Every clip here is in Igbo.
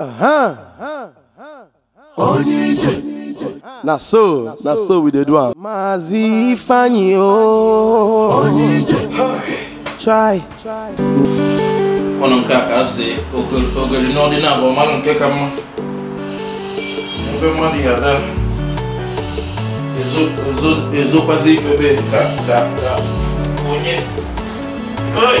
Aham. Onye Na so, na so we dey do am. Mazi Ifeanyi o. Oh. Onye Try. Ọnụ nke a ka asị ogori n'ọdị na abụọ mmadụ nke ka mma. Ebe mmadụ ya ada ezokwazi ife ebe ka onye. Oi!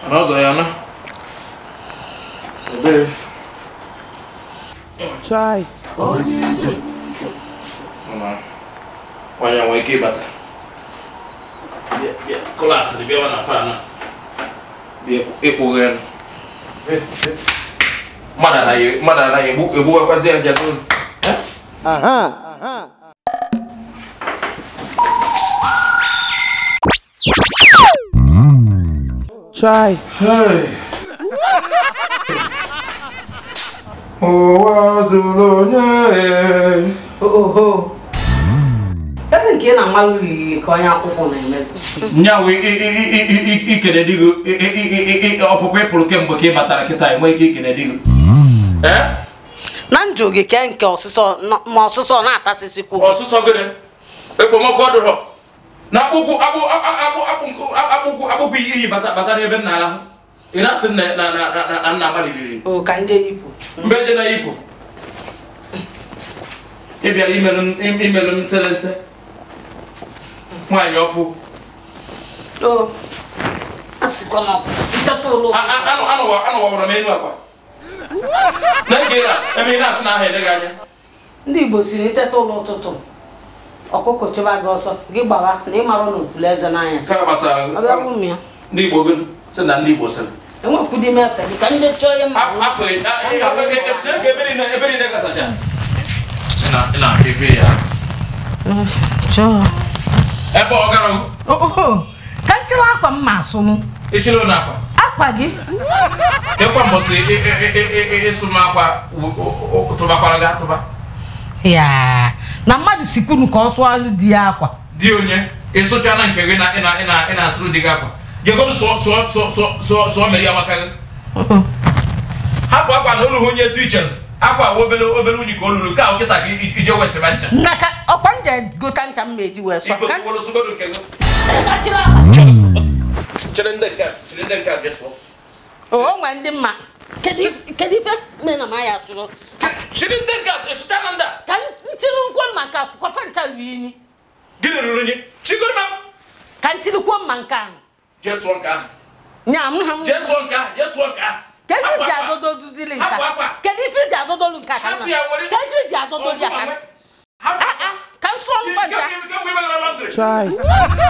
anh rồi quay kia anazo yana ebe chai onye ije mana nwanyị nwee ike ịbata kụlasịrị bịawa na fan ịkpụghị mmadụ anaghị egbugakwazi ya jagoro aha aha Try. Hey. Ụwa onye. Oho. Ebe nke na mmalụ liri ka onye akwụkwọ na-emezu. Nyanwụ ikele ọpụpụ ịpụrụ kemgbe ka ị batara kịta ike ikele di Na njụ nke ọsụsọ ma ọsụsọ na-atasịsịkwu. Ọsụsọ gịnị? Ekpomọkụ ọdụrọ. Na okwu iyi batara ebe nna ahụ ị na-asị na nna amaliriri mgbe eje na ipo ị bịara imelu m nselese nwaanyị ọfụ anụwawara m elu na ege na eme ị na-asị na ahụ eleghị anya ndị Igbo si na iteta ụlọ ụtụtụ ọkụkọ chụba gị ọsọ gị gbawa na ị mara n'okpuru eze n'anya ndị Igbo ndị sịrị ka ndị chọọ ihe mma ebe ka m chịrị akwa m ma asụnụ akwa gị ịkwa mbọsị ịsụ m akwa tụbakwara gị atụba yaa na mmadụ sikwunu ka ọ sụọ di ya akwa di onye ịsụcha na nke gị na ị na-asụrụ di gị akwa jegodu sụọ mere ya maka gị hapụ akwa na olughị onye etu iche akwa obere obere unyi ka o ka nkịta gị ije wesịba ncha ọkwa nje gota ncha m eji wee hmm. o ndị mma kedu ife na sụrụ chiri ndị a na ndị a kantini ko manka ko fanta wini gine lulunye chigurma kantini ko manka yes wanka nya mham yes wanka yes wanka kefi ji azodo duzili nka kedu fi ji azodo lu nka kana kefi ji azodo lu nka kana ah ah kan so fanta try